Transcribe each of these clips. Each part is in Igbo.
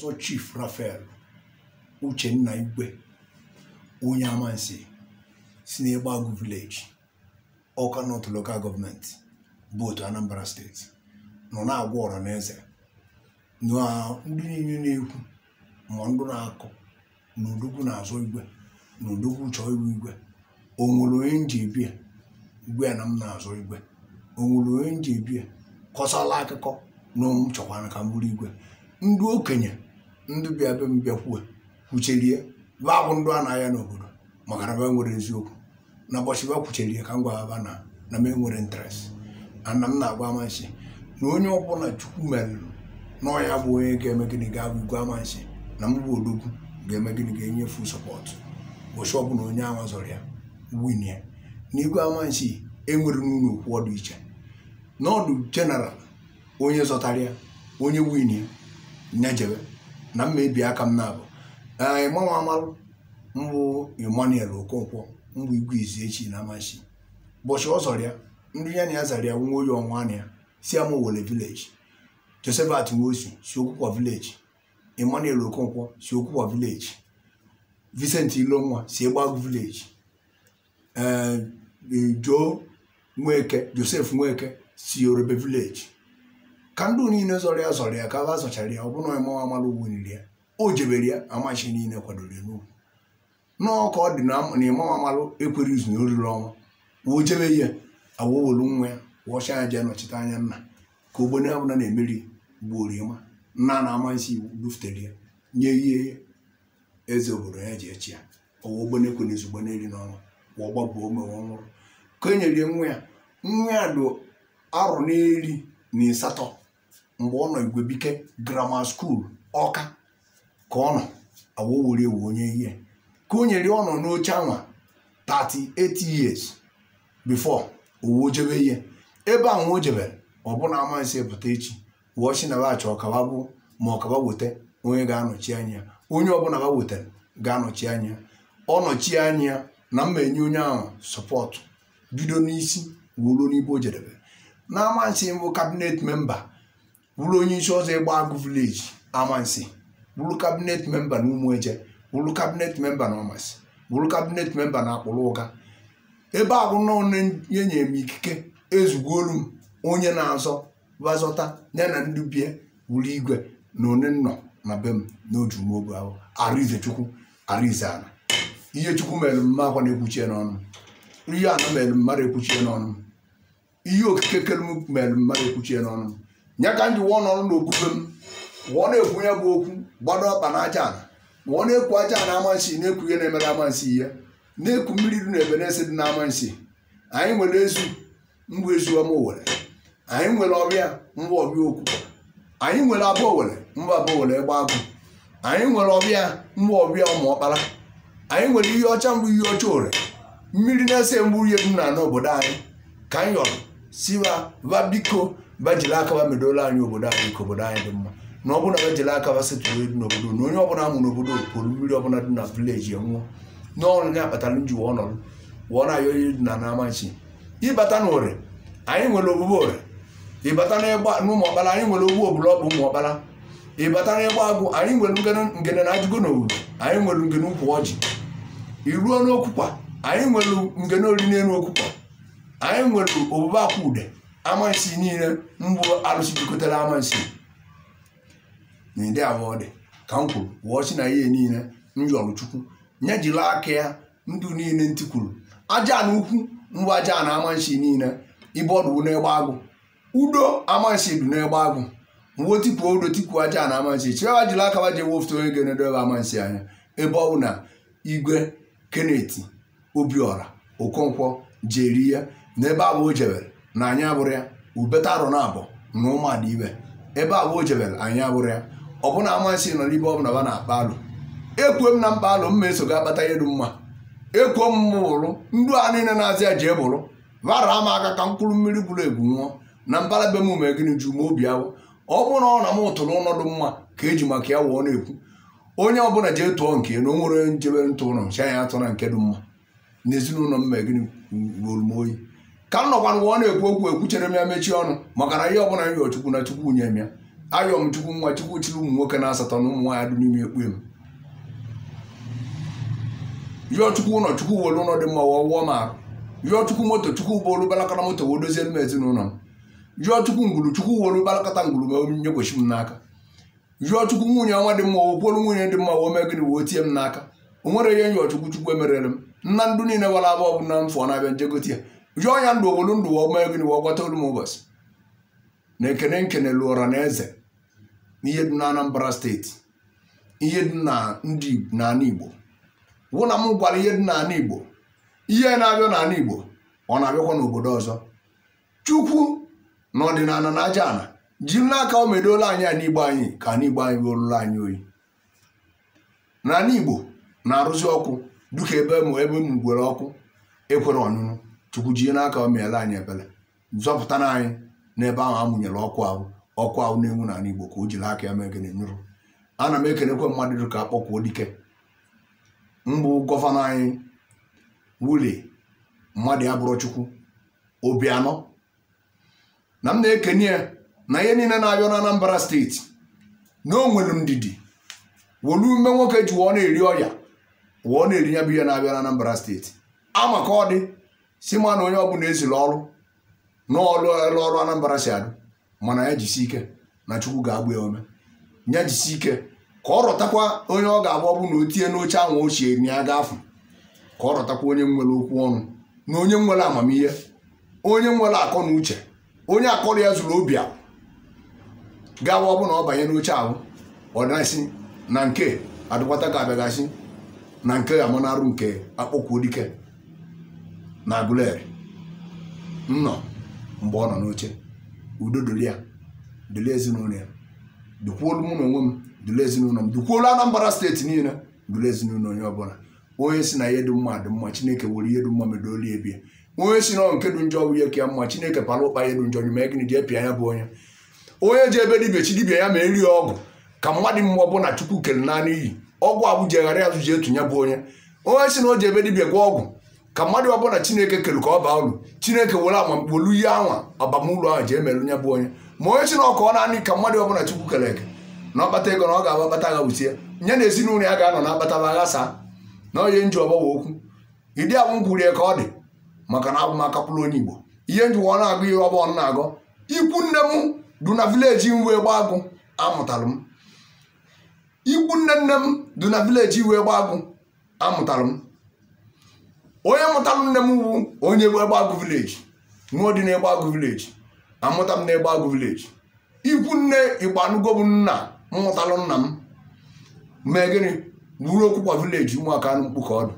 ọzọ Chief rafael Uchenna Igwe onye amansi si n'Egbagu vileji ọka North Local Government bụ otu Anambra steeti nọ na-agwa ọra na ndị niile na-ekwu ma ndụ na-akụ na odogwu na igwe na chọọ iwu igwe o nwere onye nji ebie igwe na m na igwe o nwere onye nji ebie kọsala akụkọ na chọkwara ka m bụrụ igwe ndị okenye ndị bịa be m bịakwuo kwucherie ba abụ ndụ a na-aya n'obodo maka na be nwere eziokwu na ụbọchị ba kwucherie ka m gwara na na m enwere interest ana m na-agwa amansi na onye ọbụla chukwu merụrụ n'ọya bụ onye ga-eme gịnị ga-abụ igwe amansi na m bụ odogwu ga-eme gịnị ga-enyefu sọpọtụ ụbọchị ọbụla onye ama zọrọ ya win ya na igwe amansi enwere n'ụlọ okwu ọdụ iche n'ọdụ jeneral onye zọtara ya onye win ya nyejebe na mma ebi aka m na-abụ ee ịmanwe mbụ Okonkwo mbụ igwe izu echi na amachi ụbọchị ọ ya ndị ya na ya zara ya nwa oyi ọnwa si ama Owere village Josephat Nwosu si Okonkwo si Okwukwa village Vincent Ilonwa si Egbagu village ee Joe Nweke Joseph Nweke si Yorùbá village ka ndị niile zọrọ ya zọrọ ya ka ha zọchara ya ọ bụna ịmawa amala ugwu nri ya o jebere ya amachi niile kwadoro ya n'ugwu nọọ ka ọ dị na ịmawa amalụ ekwere izu na oriri ọnwa woo jebe ya awowolu nwa ya wọcha ya jee nọchite anya nna ka ogbene abụla na-emeri gbuoro ịma nna na-ama isi iwu bufutere ya nye ihe eze obodo ya ji echi ya ọwa ogbenekwe na ezugbo na n'ọnwa wa ọgbabu omewe ọhụrụ ka e nyere nwa ya nwa ya dụ arụ n'eri na ịsatọ mgbe ọ nọ Igwebike grammar school ọka ka ọ nọ awowere ewu onye ihe ka o nyere ọ nọ n'oche anwa 38 years before owu jebe ihe ebe a nwa o jebere ọbụna amansị pụta echi wụọ Chinabach ọkaba bụ ma ọkaba weta onye ga-anọchi anya onye ọbụla ga wetara ga-anọchi anya ọ nọchi anya na mma enye onye ahụ sọpọtụ bido n'isi wuruo n'igbo o jedebe na amansị mbụ kabinet memba bụrụ onye isi ọzọ ịgba agụ vileji amansi bụrụ kabinet memba na ụmụeje bụrụ kabinet memba na ọmasị bụrụ kabinet memba na akpụrụ ụga ebe ahụ nọnye nye m ikike ezugolu m onye na-azọ bazọta ya na ndị bie wuru igwe na one nọ na be m n'otu mobu ahụ arụize chukwu arụize ala ihe chukwu mere mma akwa na-ekwuchie n'ọnụ ihe ana mere mmadụ ekwuchie n'ọnụ ihe okike kere m mere mmadụ ekwuchie n'ọnụ ya ka m ji wụọ n'ọrụ n'okpukpe m wụọ na-ekwu bụ okwu gbado ọkpa na aja wụọ na-ekwu aja ana amansi na-ekwu ihe na-emere amansi ya na-ekwu mmiri dị na ebe na-esi dị na anyị nwere ezu mbụ ezu ọma owere anyị nwere ọbịa mbụ ọbịa okwu anyị nwere abụ owere mbụ abụ owere egbe agụ anyị nwere ọbịa mbụ ọbịa ụmụ ọkpara anyị nwere ihe ọcha mbụ ihe ọcha owere mmiri na-ese mgbu ihe dum na n'obodo anyị ka anyị yọrọ siwa va jiri aka ba medola anyị obodo anyị ka obodo anyị dị mma na ọ bụ na bajili aka ba n'obodo na onye ọbụla amụ n'obodo pụrụ mmiri ọbụla dị na vileji enwụọ n'ọrụ ya kpatara nji wụọ nọrọ wụọ na ayọ dị na n'amachi ịbata na ore anyị nwere ogbugbo ore ịbata n'ụmụ ọkpara anyị nwere ogbu obula ọbụ ụmụ ọkpara ịbata ịgba agwụ anyị nwere ngene na ajụgo na anyị nwere ngene ụkwụ ori n'elu okwukwa anyị nwere obube akwa ude amansi niile mgbu arụsị jikọtara amansi na ndị abụọ dị ka m kwuru wụọ si na ihe niile m chukwu nye jiri aka ya ndụ niile ntị kwuru aja na ukwu mgbu aja na amansi niile ibe ọdụ n'egbe agụ udo amansi dị n'egbe agụ mgbe tipuo udo tipuo aja na amansi chịrịwa jiri aka wa jewe onye ga-enedobe amansi anya ebe ọ bụ na igwe keneti obiọra okonkwo jeri ya n'ebe abụ o jebere na anyị abụrụ ya ubeta arụ na abụ na ụmụada ibe ebe abụọ jebel anyị abụrụ ya ọ bụna amasị nọ n'ibe bụla ba na-akpa alụ ekwuo m na mkpa alụ mma eso ga-akpata elu mma ekwuo m bụrụ ndụ a niile na-azị ya jee bụrụ bara m aka ka mkpụrụ mmiri gburu egwu nwụọ na mbara be m ume gịnị ju ma obi awụ ọ bụrụ na ọ na m tụrụ ọnọdụ mma ka eji maka ya wụọ na-ekwu onye ọbụla jee tụọ nke na o nwere njebe ntụ ụlọ ncha anya atụ na nke dị mma n'ezinụlọ mma gịnị ruolu m oyi ka m nọkwa nwa ọ na-ekwu okwu ekwuchere m ya mechie ọnụ maka na ihe ọbụla m yọọ na chukwu nye m ya ayọ m chukwu nwa chukwu chiri ụmụ nwoke na asatọ na ụmụ nwaanyị dị n'ime ekpue m yọọ chukwu ụlọ chukwu were ụlọ dị mma wụọ wụọ m chukwu moto chukwu bụ balakọta moto wee dozie m ezinụlọ m yọọ chukwu ngwuru chukwu were balakọta ngwuru ma m n'aka chukwu nwunye ọnwa dị mma wokwuolu nwunye dị mma woo mee gịnị woo tie m n'aka o nwere ihe nyọọ chukwu chukwu emerere m nna ndụ niile wara abụọ bụ na na-abịa njegote ya jụọ ya ndụ obodo ndụ ọma ego na ọgwọta olu m ụbọchị na ekene nkene lụọra na eze ihe dị na Anambra steeti ihe dị na ndị n'ala Igbo wụ na m gwara ihe dị n'ala Igbo ihe na-abịa n'ala Igbo ọ na-abịakwa n'obodo ọzọ Chukwu na ọdịnala na aja ana jiri n'aka o medola anyị a n'igbo anyị ka n'igbo anyị weruru anyị oyi n'ala Igbo na-arụzi ọkụ dịka ebe m ebe m gwere ọkụ ekwere ọnụnụ chukwu jie n'aka o anyị ebele zọpụtara anyị n'ebe ahụ a mụnyere ọkụ ahụ ọkụ ahụ na-enwu n'ala Igbo ka o jiri aka ya mee gịnị nyụrụ ana m ekelekwa mmadụ ka akpọkwuo dike mbụ gọvanọ anyị wuli mmadụ ya bụrụ chukwu obi anọ na m na ekenye ya na ihe niile na-abịa na Anambra steeti na o nwere ndidi wolu ume nwoke ji wụọ na-eri ọya wụọ na-eri ya bụ ihe na-abịa na Anambra steeti ama ka ọ dị si ma na onye bụla ezila ọrụ n'ọrụ elu ọrụ Anambra si adụ mana ya jisi ike na Chukwu ga-agba ya ome ya jisi ike ka ọ rọtakwa onye ọ ga agba ọ na o tinye n'oche ahụ ochie na ya gafe ka ọ rọtakwa onye nwere okwu ọnụ na onye nwere amamihe onye nwere akọ na uche onye akọrọ ya zuru obi ahụ gawa ọ na ọ banye n'oche ahụ ọ na na nke adụkwata ga-abịagasị na nke ga-amanarụ nke akpọkwuo dike na Aguleri nnọ mgbe ọ nọ n'oche udo dolia ya ezinụlọ ya dukwuolu mụ na onwe m duli ezinụlọ m dukwuolu Anambra steeti niile duli ezinụlọ onye ọbụla onye si na ihe dị mma dị mma Chineke were ihe dị mma medolie ebie onye si na nke dị njọ bụ ihe ka ya mma Chineke pala ụkpa ihe dị njọ nye mee gịnị ji epịa ya bụ onye onye ji ebe dibịa chi dibịa ya ma eri ọgụ ka mmadụ mmụọ bụ na Chukwu kere naanị iyi ọgwụ abụjeghara azụ ji etu ya bụ onye onye si na o ji ebe dibịa gwa ọgwụ ka mmadụ ọbụla chineke kere ka ọ baa uru chineke were amamkpolu ihe anwa abamuru ahụ ji emere onye bụ onye ma onye chinọkụ ọ naanị ka mmadụ ọbụla chukwu kere eke na ọkpata ego na ọ ga agba kpata agha wusie nye na ezinụlọ ya ga-anọ na akpata agha saa na onye nji ọgbawa okwu ịdị agwụ gwuru ya ka ọ dị maka na abụ m onye igbo ihe njiwa ọ na-agụ ihe ọgbọ ọ na-agụ ikwu nne m du na vileji wee gba agụ amụtalụ m ikwu nne nne m du na vileji wee gba agụ amụtalụ m onye mụtalụ nne m bụ onye egbe agụ vileji nwa dị n'egbe agụ vileji amụta m n'egbe agụ vileji ikwu nne igbo bụ nna mmụtalụ nna m mee gịnị buru okwukwa vileji ụmụaka anụ mkpu ka ọdụ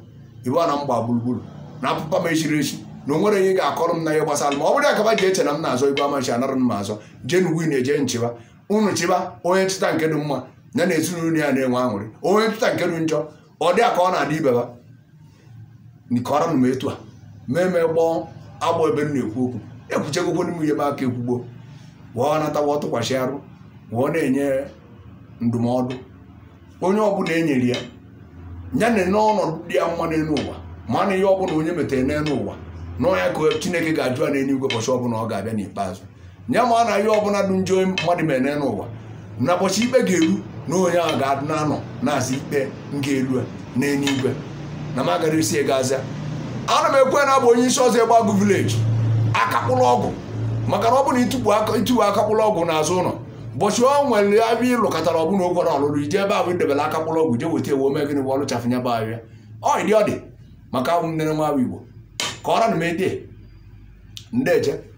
ibe na mgba gburugburu na apụpa m echiri echi na o nwere ihe ga-akọrọ m na ihe gbasara ma ọ bụrụ akaba ji eche na m na-azọ igwe amachi anara m azọ jee n'ugwu na-eje nchịba unu chịba onye nchịta nke dị mma ya na ezinụlọ ya na-enwe aṅụrị onye nchịta nke dị njọ ọ dị a ka ọ na-adị ibeba nkọrọ m etu a mee mee gbọọ agbọ ebe m na-ekwu okwu ekwuchegokwo m ihe m aka ekwugbo wụọ natawa tụkwasị arụ wụọ na-enye ndụmọdụ onye ọbụla enyere ya ya na n'ọnọdụ dị ya mma n'elu ụwa ma na ihe ọbụla onye metere n'elu ụwa na ya ka chineke ga-ajụ a n'elu igwe ụbọchị ọbụla ọ ga-abịa n'ikpeazụ ya ma na ihe ọbụla dị njọ mmadụ mere n'elu ụwa na ụbọchị ikpe ga-eru na onye ahụ ga-adị na-anọ na-asị ikpe nga elu a n'eluigwe na m agara isi egazia ana m ekwe na bụ onye isi ọzọ agụ vileji akakpụlụ ọgwụ maka na ọ bụrụ na ituwe akakpụlụ ọgwụ n'azụ ụlọ ụbọchị ọ nwere abịa ịlụ katara ọbụna okwara ọlụlụ ije ebe ahụ idebere akakpụlụ ọgwụ je weta ewu omegịnị bụ ọrụ chafụnya bụ ahịa ọ dị ọ dị maka abụ nne nwa Igbo ka ọra na m ede ndeje